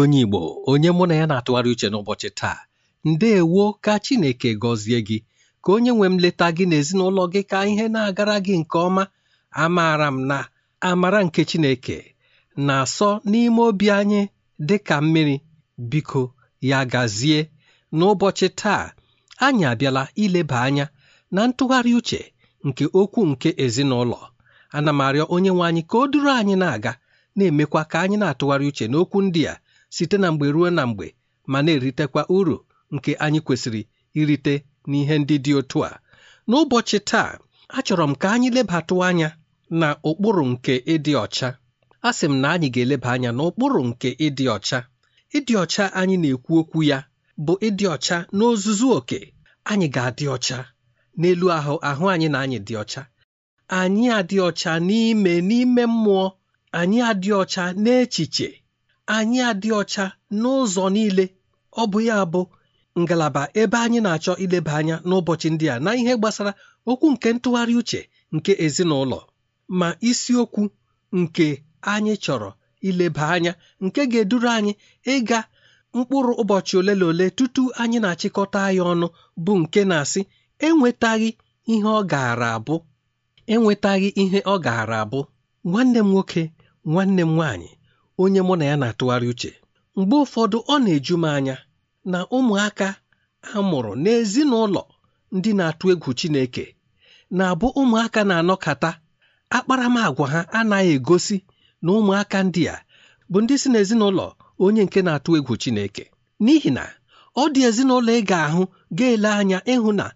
onye Igbo onye mụ na ya na-atụgharị uche n'ụbọchị taa ndeewo ka Chineke gọzie gị ka onye nwe m leta gị n'ezinụlọ gị ka ihe na-agara gị nke ọma amaara m na amara nke Chineke na-asọ n'ime obi anyị dị ka mmiri biko ya gazie n'ụbọchị taa anyị abịala ileba anya na ntụgharị uche nke okwu nke ezinụlọ ana m arịọ onye nwe anyị ka o duru anyị na-aga na-emekwa ka anyị na-atụgharị uche n'okwu ndị a site na mgbe ruo na mgbe ma na-eritekwa uru nke anyị kwesịrị irite n'ihe ndị dị otu a n'ụbọchị taa achọrọ m ka anyị lebatụ anya na ụkpụrụ nke ịdị ọcha a sị m na anyị ga-eleba anya na ụkpụrụ nke ịdị ọcha ịdị ọcha anyị na-ekwu okwu ya bụ ịdị ọcha n'ozuzu oke anyị ga-adị ọcha n'elu ahụ ahụ anyị na anyị dị ọcha anyị adị ọcha n'ime n'ime mmụọ anyị adị ọcha n'echiche anyị adị ọcha n'ụzọ niile ọ bụ ya bụ ngalaba ebe anyị na-achọ ileba anya n'ụbọchị ndị a na ihe gbasara okwu nke ntụgharị uche nke ezinụlọ ma isiokwu nke anyị chọrọ ileba anya nke ga-eduru anyị ịga mkpụrụ ụbọchị ole na ole tutu anyị na-achịkọta ya ọnụ bụ nke na-asị enwetaghị ihe ọ gaara abụ enwetaghị ihe ọ gaara abụ nwanne m nwoke nwanne m nwaanyị onye mụ na ya na-atụgharị uche mgbe ụfọdụ ọ na-eju m anya na ụmụaka a mụrụ n'ezinụlọ ndị na-atụ egwu Chineke na-abụ ụmụaka na-anọkata akparamagwa ha anaghị egosi na ụmụaka ndị a bụ ndị si n'ezinụlọ onye nke na-atụ egwu Chineke n'ihi na ọ dị ezinụlọ ị ga-ahụ ga-ele anya ịhụ na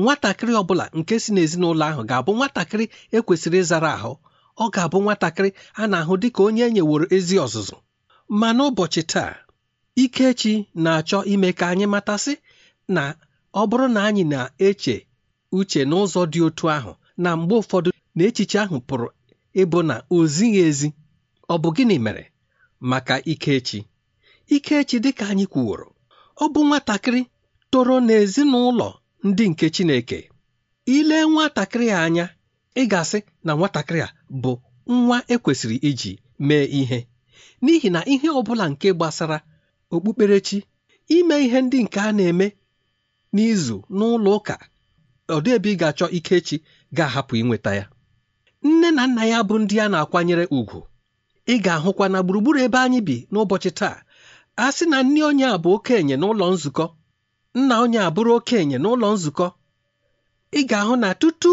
nwatakịrị ọ bụla nke si n'ezinụlọ ahụ ga-abụ nwatakịrị ekwesịrị ịzara ahụ ọ ga-abụ nwatakịrị a na-ahụ dị ka onye enyeworo ezi ọzụzụ ma n'ụbọchị taa Ikechi na-achọ ime ka anyị matasị na ọ bụrụ na anyị na-eche uche n'ụzọ dị otu ahụ na mgbe ụfọdụ na echiche ahụ pụrụ ịbụ na o zighị ezi ọ bụ gịnị mere maka Ikechi Ikechi dịka anyị kwuworo ọ bụ nwatakịrị toro n'ezinụlọ ndị nke Chineke ilee nwatakịrị a anya ị ga-asị na nwatakịrị a bụ nwa ekwesịrị iji mee ihe n'ihi na ihe ọ bụla nke gbasara okpukperechi ime ihe ndị nke a na-eme n'izu n'ụlọ ụka ọ ebe ị ga-achọ Ikechi ga-ahapụ inweta ya nne na nna ya bụ ndị a na-akwanyere ùgwù ị ga-ahụkwa na gburugburu ebe anyị bi n'ụbọchị taa a sị na nne onye a bụ okenye n'ụlọ nzukọ nna onye abụrụ okenye n'ụlọ nzukọ ị ga-ahụ na tutu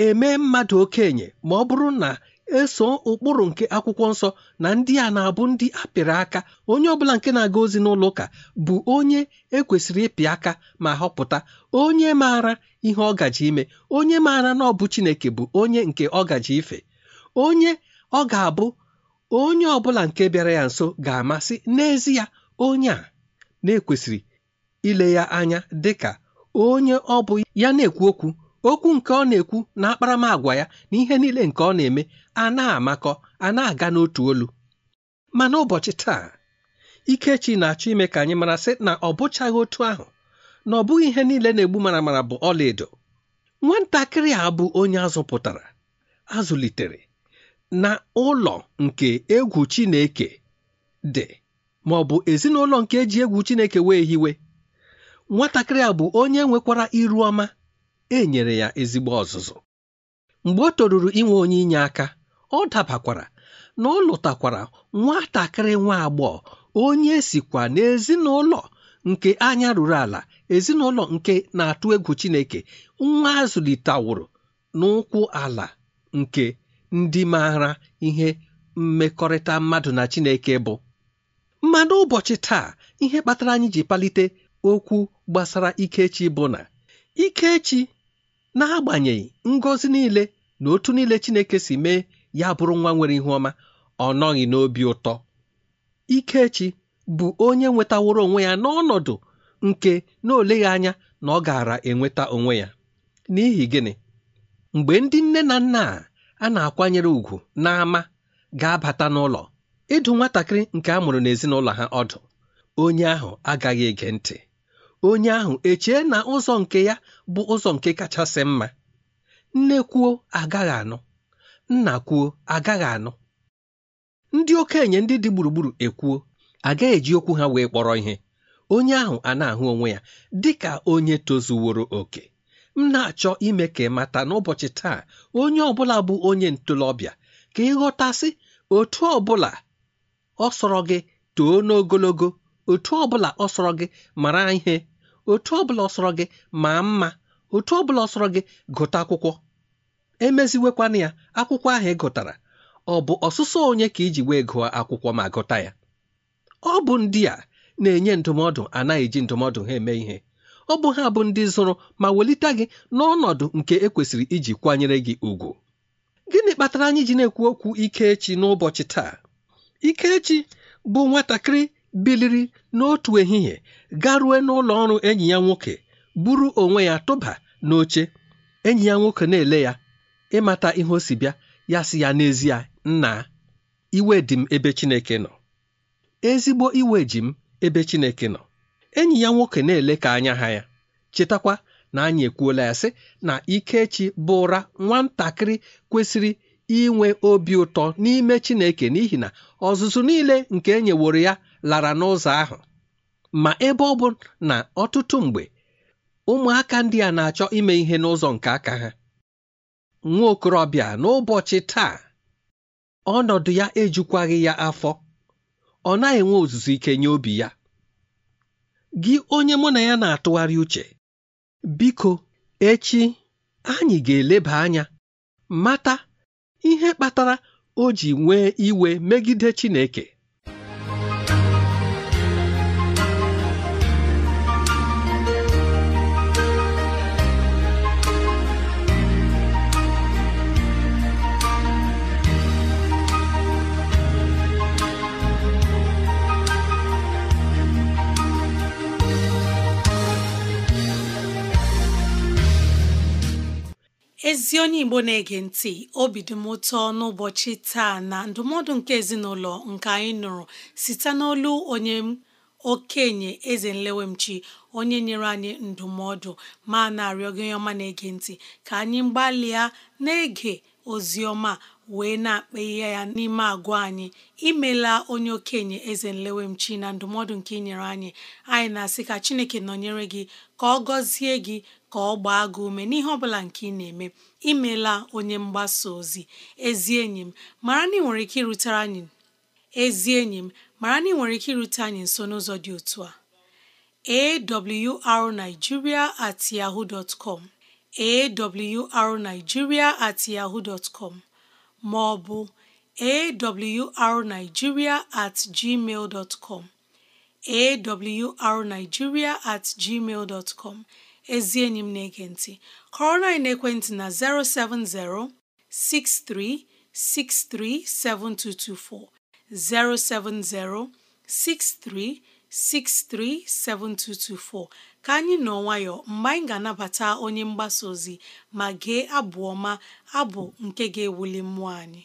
eme mmadụ okenye ma ọ bụrụ na eso ụkpụrụ nke akwụkwọ nsọ na ndị a na-abụ ndị apịrị aka onye ọbụla nke na-aga ozi n'ụlọ ụka bụ onye ekwesịrị ịpị aka ma họpụta onye maara ihe ọ gaji ime onye maara na ọ bụ Chineke bụ onye nke ọ gaji ife onye ọ ga-abụ onye ọbụla nke bịara ya nso ga-amasị n'ezie onye a na-ekwesịrị ile ya anya dịka onye ọ bụ ya na-ekwu okwu okwu nke ọ na-ekwu na akparamagwa ya na ihe niile nke ọ na-eme a na-amakọ a na-aga n'otu olu ma n'ụbọchị taa Ikechi na-achọ ime ka anyị mara sị na ọ bụchaghị otu ahụ na ọ bụghị ihe niile na-egbu maramara bụ ọlaedo nwatakịrị a bụ onye azụpụtara azụlitere na ụlọ nke egwu Chineke dị ma ọ bụ ezinụlọ nke eji egwu Chineke wee hiwe nwatakịrị a bụ onye nwekwara iru ọma e nyere ya ezigbo ọzụzụ mgbe ọ toruru inwe onye inye aka ọ dabakwara na ọ lụtakwara nwatakịrị nwa agbọghọ onye sikwa n'ezinụlọ nke anya ruru ala ezinụlọ nke na-atụ egwu Chineke nwa azụlitewụrụ n'ụkwụ ala nke ndị maara ihe mmekọrịta mmadụ na Chineke bụ ma n'ụbọchị taa ihe kpatara anyị ji palite okwu gbasara Ikechi bụ na Ikechi n'agbanyeghị ngozi niile na otu niile chineke si mee ya bụrụ nwa nwere ihu ọma ọ nọghị n'obi ụtọ ikechi bụ onye nwetaworo onwe ya n'ọnọdụ nke na oleghị anya na ọ gaara enweta onwe ya n'ihi gịnị mgbe ndị nne na nna a na-akwanyere ùgwù n'ama ga-abata n'ụlọ ịdụ nwatakịrị nke a mụrụ n'ezinụlọ ha ọdụ onye ahụ agaghị ege ntị onye ahụ echee na ụzọ nke ya bụ ụzọ nke kachasị mma nne kwuo agaghị anụ nna kwuo agaghị anụ ndị okenye ndị dị gburugburu ekwuo agaghị eji okwu ha wee kpọrọ ihe onye ahụ a na-ahụ onwe ya dị ka onye tozuworo oke m na-achọ ime ka mata n'ụbọchị taa onye ọbụla bụ onye ntolobịa ka ịghọtasị otu ọbụla ọ sọrọ gị too n'ogologo otu ọbụla ọ sọrọ gị mara ihe otu ọbụla ọsọrọ gị maa mma otu ọbụla ọsọrọ gị gụta akwụkwọ emeziwekwana ya akwụkwọ ahụ ị gụtara ọ bụ ọsụsọ onye ka iji wee gụọ akwụkwọ ma gụta ya ọ bụ ndị a na-enye ndụmọdụ anaghị eji ndụmọdụ ha eme ihe ọ bụ ha bụ ndị zụrụ ma welite gị n'ọnọdụ nke ekwesịrị iji kwanyere gị ugwu gịnị kpatara anyị ji na-ekwu okwu ikechi n'ụbọchị taa ikechi bụ nwatakịrị biliri n'otu ehihie garue n'ụlọ ọrụ enyi ya nwoke buru onwe ya tụba n'oche enyi ya nwoke na-ele ya ịmata ihe o si bịa ya si ya n'ezie nna iwe dị m ebe Chineke nọ ezigbo iwe ji m ebe Chineke nọ enyi ya nwoke na-ele ka anya ha ya chetakwa na anyị ekwuola ya sị na Ikechi bụra nwatakịrị kwesịrị inwe obi ụtọ n'ime Chineke n'ihi na ọzụzụ niile nke e ya lara n'ụzọ ahụ ma ebe ọ bụ na ọtụtụ mgbe ụmụaka ndị a na-achọ ime ihe n'ụzọ nke aka ha nwa okorobịa n'ụbọchị taa ọnọdụ ya ejukwaghị ya afọ ọ naghị enwe ozuzu ike nye obi ya gị onye mụ na ya na-atụgharị uche biko echi anyị ga-eleba anya mata ihe kpatara o ji nwee iwe megide Chineke ezi onye igbo na-ege ntị obi dị m ụtọ n'ụbọchị taa na ndụmọdụ nke ezinụlọ nke anyị nụrụ site n'olu onye okenye eze nlewemchi onye nyere anyị ndụmọdụ ma na-arịọ gị onye ọma na-ege ntị ka anyị gbalịa na-ege ozi ọma wee na-akpa ihe ya n'ime agwa anyị imela onye okenye eze nlewemchi na ndụmọdụ nke inyere anyị anyị na-asị ka chineke nọnyere gị ka ọ gọzie gị ka ọ gbaa gị ume n'ihe ọ nke ị na-eme imela onye mgbasa ozi ezi enyi m mara na ị nwere ike irutere anyị irute anyị nso n'ụzọ dị otu a arigiria at yahoo dot com at yahoo dot com ma ọ bụ at gmail dot gmail dot com ezi enyi m na-ege ntị kọrọ na-ekwentị na 070 6363 7224 070 6363 7224 ka anyị nọ nwayọ mgbe anyị ga-anabata onye mgbasa ozi ma gee abụ ọma abụ nke ga-ewuli mmụọ anyị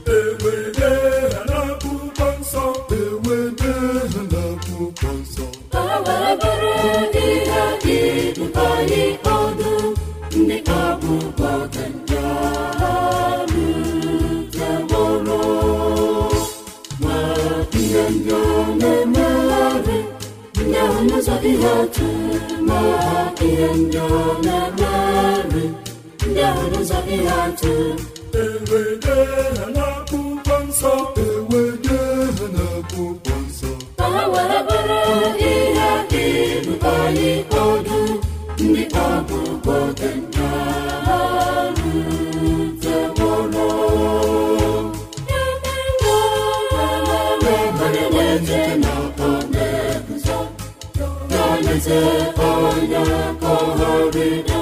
onye ndị ọ na-emeri ndị ahụ n'ụzọ ihe atụ enwere na eze onye kọhọrịrị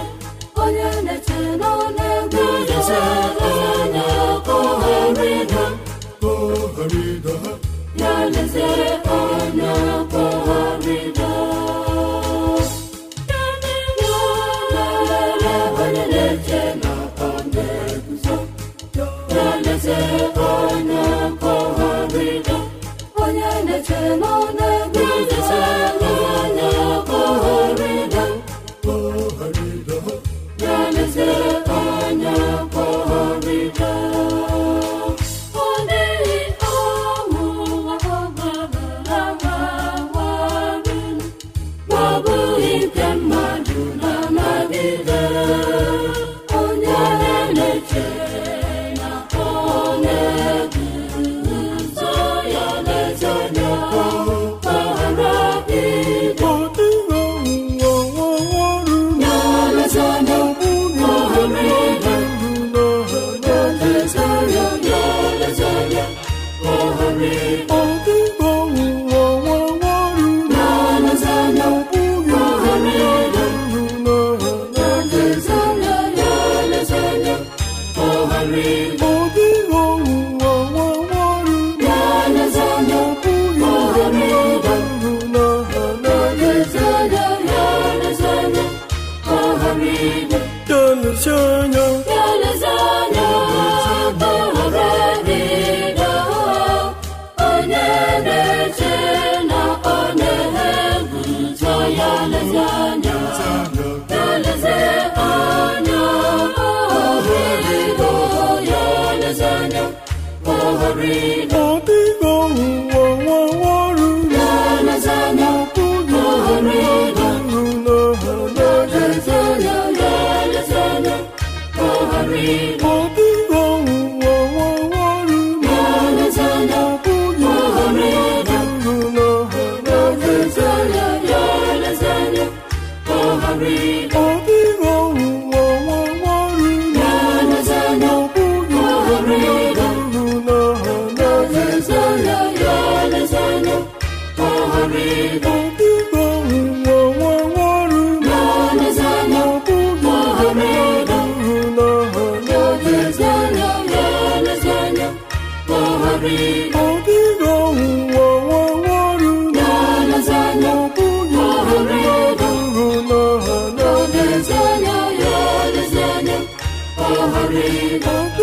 oh.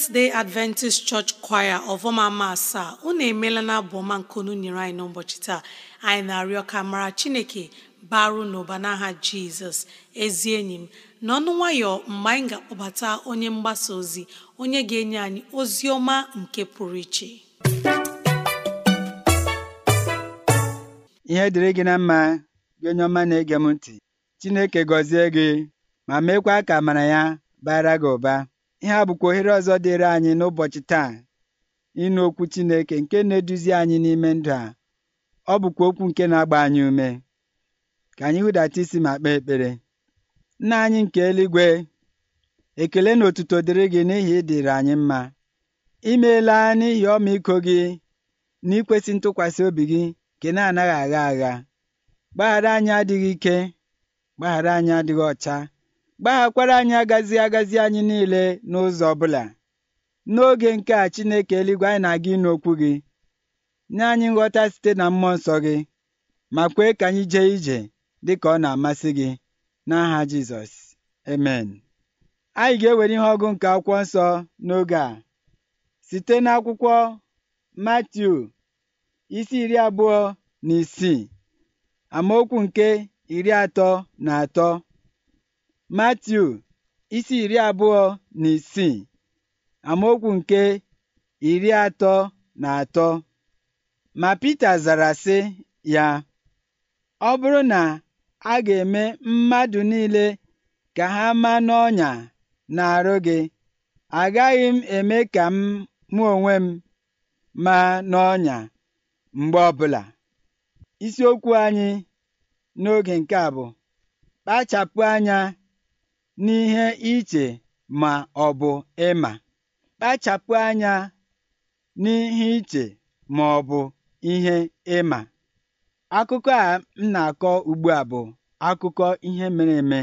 seventh day adventist church choir ọvọmama asaa unu emela na abụọma nkunu nyere anyị n'ụbọchị taa anyị na-arịọ ka mara chineke baru n'ụba n'aha jizọs ezi enyi m n'ọnụ nwayọ mgbe anyị ga-akpọbata onye mgbasa ozi onye ga-enye anyị ozi ọma nke pụrụ iche ihe dịrị gị na mma gị onye ọma na-ege m ntị chineke gọzie gị ma meekwa ka amara ya bara gị ụba ihe a bụkwa ohere ọzọ dịịrị anyị n'ụbọchị taa ịnụ okwu Chineke nke na-eduzi anyị n'ime ndụ a ọ bụkwa okwu nke na-agba anyị ume ka anyị hụdata isi ma kpee ekpere nna anyị nke eluigwe ekele na otuto dịrị gị n'ihi ịdịrị anyị mma imeela n'ihi ọmịiko gị na ikwesị ntụkwasị obi gị nke na-anaghị agha agha gbaghara anyị adịghị ike gbaghara anyị adịghị ọcha gbaghakwara anyị agazi agazi anyị niile n'ụzọ ọbụla n'oge nke a chineke eluigwe anyị na-aga ịnụ okwu gị nye anyị nghọta site na mmụọ nsọ gị ma kwee ka anyị jee ije dị ka ọ na-amasị gị n'aha jizọs amen anyị ga-ewere ihe ọgụ nke akwụkwọ nsọ n'oge a site n'akwụkwọ matiu isi iri abụọ na isii amaokwu nke iri atọ na atọ Matiu isi iri abụọ na isii amaokwu nke iri atọ na atọ ma Pita zara sị ya ọ bụrụ na a ga-eme mmadụ niile ka ha ma n'ọnya na-arụ gị agaghị m eme ka m mụ onwe m ma n'ọnya mgbe ọbụla isiokwu anyị n'oge nke a bụ kpachapụ anya n'ihe iche ma ọ bụ ịma kpachapụ anya n'ihe iche ma ọ bụ ihe ịma akụkọ a m na-akọ ugbu a bụ akụkọ ihe mere eme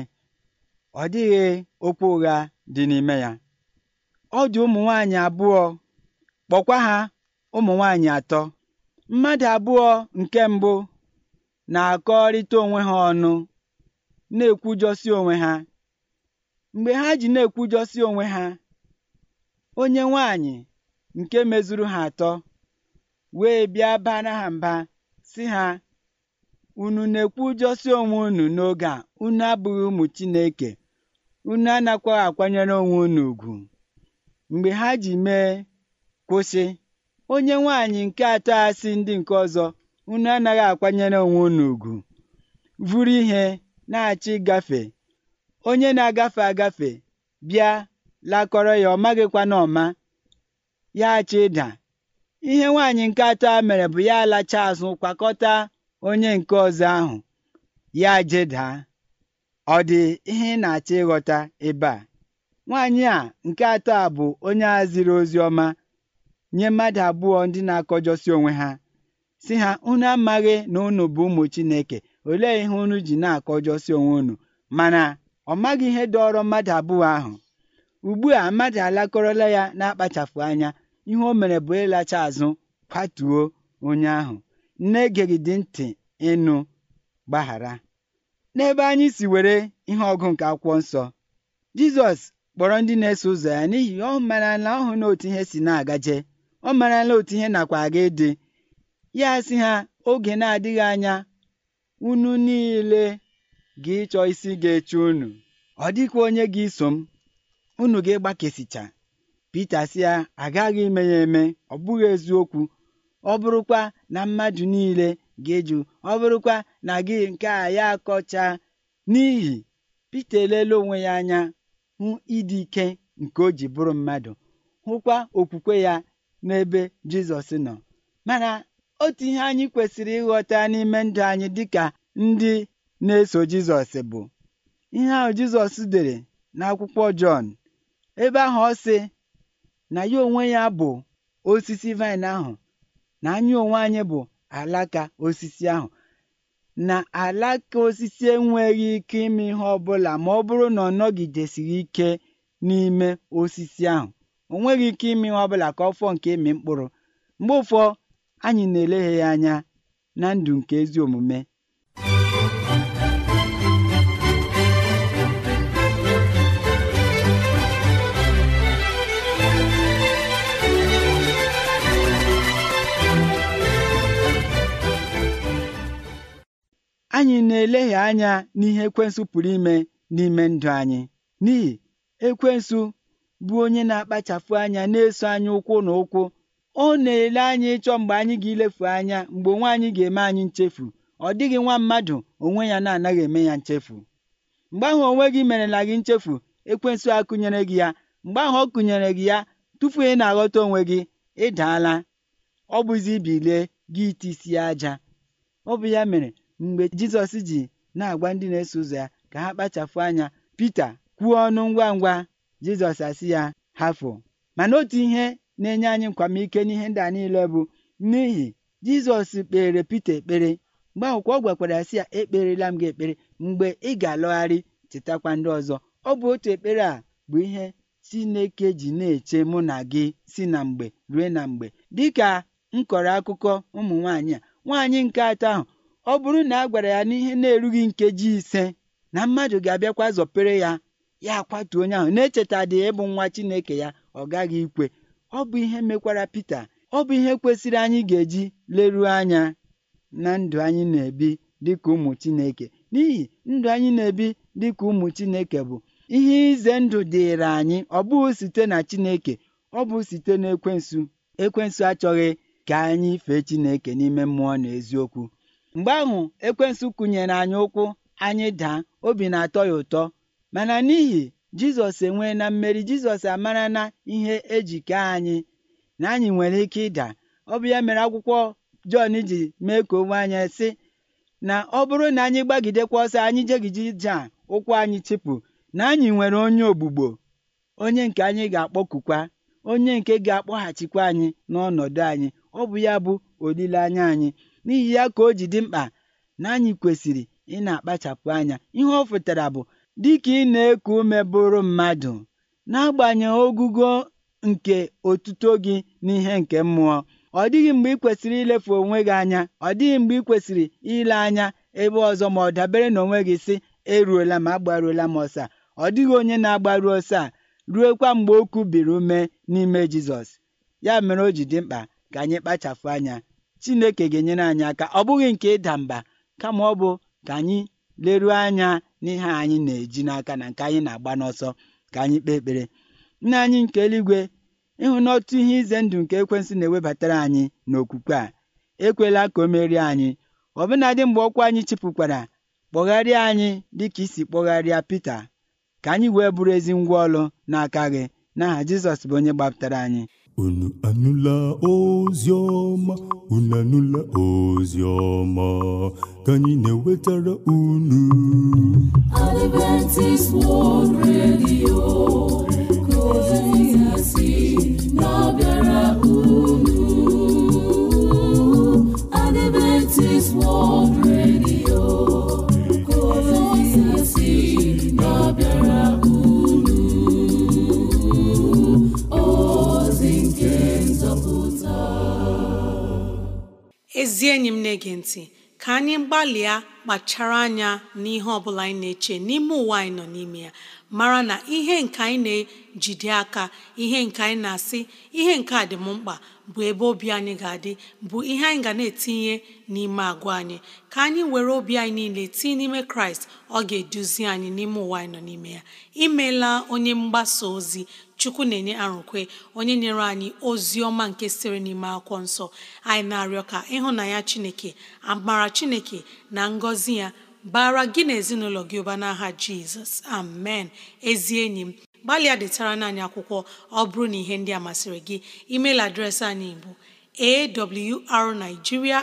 ọ dịghị okwu ụgha dị n'ime ya ọ dị ụmụ nwaanyị abụọ kpọkwa ha ụmụ nwanyị atọ mmadụ abụọ nke mbụ na-akọrịta onwe ha ọnụ na-ekwujọsi onwe ha mgbe ha ji na-ekwujọsị onwe ha onye nwanyị nke mezuru ha atọ wee bịa bara ha mba si ha unu na-ekwujọsị onwe unu n'oge a unu abụghị ụmụ Chineke unu anakwaghị akwanyere onwe unu ugwu mgbe ha ji mee kwụsị onye nwanyị nke atọ asị ndị nke ọzọ unu anaghị akwanyere onwe unu ugwu vụrụ ihe na-achọ ịgafe onye na-agafe agafe bịa lakọrọ ya ọ maghịkwana ọma ya chi ịda ihe nwaanyị nke atọ a mere bụ ya alacha azụ kwakọta onye nke ọzọ ahụ ya jeda ọ dị ihe na-achọ ịghọta ebe a nwaanyị a nke atọ a bụ onye a ziri ozi ọma nye mmadụ abụọ ndị na-akọjọsi onwe ha si ha unu amaghị na unu bụ ụmụ Chineke olee ihe unu ji na-akọjọsi onwe unu mana Ọ maghị ihe dọọrọ mmadụ abụọ ahụ. Ugbu a mmadụ alakọrọla ya na-akpachapụ anya ihe o mere bụ ịlacha azụ kwatuo onye ahụ nne egeghị dị ntị ịnụ gbaghara n'ebe anyị si were ihe ọgụ nke akwụkwọ nsọ Jizọs kpọrọ ndị na-eso ụzọ ya n'ihi ọ marala ọhụ na otu ihe si na-agaje ọ marala otu ihe nakwa aga ịdị ya si ha oge na-adịghị anya unu niile gị ịchọ isi ga-eche unu ọ dịkwa onye ga-eso m unu gị gbakesicha Pita sị ya agaghị ime ya eme ọ bụghị eziokwu ọ bụrụkwa na mmadụ niile ga-eju ọ bụrụkwa na gị nke a ya akọcha n'ihi Pita elele onwe ya anya hụ ịdị ike nke o ji bụrụ mmadụ hụkwa okwukwe ya n'ebe Jizọs nọ mana otu ihe anyị kwesịrị ịghọta n'ime ndụ anyị dịka ndị na-eso Jizọs bụ ihe ahụ Jizọs dere n'akwụkwọ Jọn ebe ahụ ọ sị na ya onwe ya bụ osisi vaịn ahụ na anyị onwe anyị bụ alaka osisi ahụ na alaka osisi enweghị ike ime ihe ọbụla ma ọ bụrụ na ọ nọgidesighị ike n'ime osisi ahụ onweghị ike ime ihe ọbụla ka ọ fọọ nke ịmị mkpụrụ mgbe ụfọ anyị na-eleghị ya anya na ndụ nke ezi omume anyị na-elehie anya n'ihe ekwensụ pụrụ ime n'ime ndụ anyị n'ihi ekwensụ bụ onye na-akpachapụ anya na-eso anyị ụkwụ na ụkwụ ọ na-ele anyị ịchọ mgbe anyị ga-ilefu anya mgbe onwe anyị ga-eme anyị nchefu ọ dịghị nwa mmadụ onwe ya na-anaghị eme ya nchefu mgbe ahụ onwe gị merela gị nchefu ekwensụ akụnyere gị ya mgbe ahụ ọ kụnyere gị ya tupu ị na-aghọta onwe gị ịdaala ọ bụzi bilie gị isi aja ọ bụ ya mere Mgbe Jizọs ji na-agwa ndị na-eso ụzọ ya ka ha kpachapụ anya Pita kwuo ọnụ ngwa ngwa Jizọs asị ya hafụ mana otu ihe na-enye anyị nkwamike n'ihe ndị a niile bụ n'ihi Jizọs kpere Pita ekpere mgbe ahụkwa ọ gwakwara ya sị ya ekperela m gị ekpere mgbe ị ga-alọgharị chetakwa ndị ọzọ ọ bụ otu ekpere a bụ ihe Chineke ji na-eche mụ na gị si na mgbe rue na mgbe dịka m akụkọ ụmụ nwaanyị a nwaanyị nke atọ ahụ ọ bụrụ na a gwara ya n'ihe na-erughị nkeji ise na mmadụ ga-abịakwa zọpere ya ya akwatuo onye ahụ na-echeta dị ịbụ nwa Chineke ya ọ gaghị ikwe ọ bụ ihe mekwara Pita ọ bụ ihe kwesịrị anyị ga-eji leruo anya na ndụ anyị na-ebi dịka ụmụ Chineke n'ihi ndụ anyị na-ebi dịka ụmụ Chineke bụ ihe ize ndụ dịịrị anyị ọ bụghị site na Chineke ọ bụ site na ekwensu ekwensu achọghị ka anyị fee Chineke n'ime mmụọ na eziokwu mgbe ahụ ekwensu kụnyere anyị ụkwụ anyị daa obi na-atọ ya ụtọ mana n'ihi jizọs enwee na mmeri jizọs amara na ihe ejike anyị na anyị nwere ike ịda ọ bụ ya mere akwụkwọ jọn ji mee ka onwe anyị sị na ọ bụrụ na anyị gbagidekwa ọsọ anyị jegiji ije ụkwụ anyị chịpụ na anyị nwere onye ogbugbo onye nke anyị ga-akpọkukwa onye nke ga-akpọghachikwa anyị n'ọnọdụ anyị ọ bụ ya bụ olileanya anyị n'ihi ya ka o ji dị mkpa na anyị kwesịrị ị na-akpachapụ anya ihe ọ pụtara bụ dịka ị na-eku ume bụrụ mmadụ n'agbanyeghị ogugo nke otuto gị n'ihe nke mmụọ ọ dịghị mgbe ị kwesịrị ilefu onwe gị anya ọ dịghị mgbe ị kwesịrị ile anya ebe ọzọ ma ọ dabere na onwe gị sị eruola m agbaruola m ọsa ọ dịghị onye na-agbaru ọsọ a ruekwa mgbe o kubiri ume n'ime Jizọs ya mere o ji dị mkpa ka anyị kpachapụ anya chineke ga-enyere anyị aka ọ bụghị nke ịda mba kama ọ bụ ka anyị leruo anya n'ihe anyị na-eji n'aka na nke anyị na-agba n'ọsọ ka anyị kpee ekpere nna anyị nke eluigwe ịhụ n'ọtụ ihe ize ndụ nke ekwensị na-ewebatara anyị n'okwukwe a ekwela ka o merie anyị ọbụnadị mgbe ọkwa anyị chịpụkwara kpọgharịa anyị dịka isi kpọgharịa Pita ka anyị wee bụrụ ezi ngwa ọlụ n'aka gị n'aha Jizọs bụ onye gbapụtara anyị unu anụla ozi ọma unu anụla ozi ka anyị na-ewetara unu ozi na-abịara unu Adventist World Radio ezi enyi m na-ege ntị ka anyị gbalịa kpachara anya n'ihe ọ bụla anyị na-eche n'ime ụwa anyị nọ n'ime ya mara na ihe nke anyị na-ejide aka ihe nke anyị na-asị ihe nke a dị m mkpa bụ ebe obi anyị ga-adị bụ ihe anyị ga na-etinye n'ime agwa anyị ka anyị were obi anyị niile tinye n'ime kraịst ọ ga-eduzi anyị n'ime ụwa anyị nọ n'ime ya imela onye mgbasa ozi chukwu na-enye arụkwe onye nyere anyị ozi ọma nke siri n'ime akwụkwọ nsọ anyị na-arịọ ka ịhụnanya chineke amara chineke na ngọzi ya bara gị na ezinụlọ gị ụba n'aha jizọs amen ezi enyi m gbalịa detara naanị akwụkwọ ọ bụrụ na ihe ndị a masịrị gị email adreesị anyị bụ awrnigeria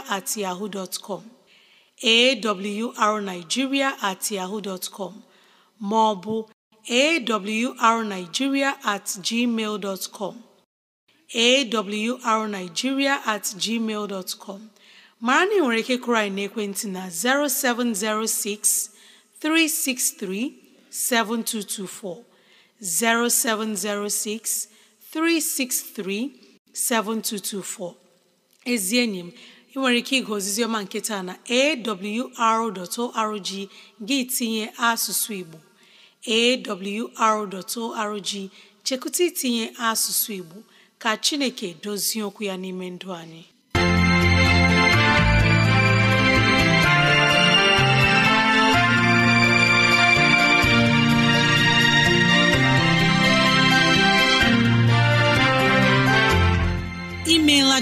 at at ma ọ bụ awrnigeria at gmail dot com at gmail mara na ị nwere ike kụrụ anyị n'ekwentị na 0706 363 7224 0706 363 7224 ezi enyi m ị nwere ike ịga ozizioma nke taa na awr.org gị tinye asụsụ Igbo awr.org chekụta itinye asụsụ Igbo ka Chineke dozie okwu ya n'ime ndụ anyị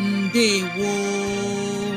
ndewo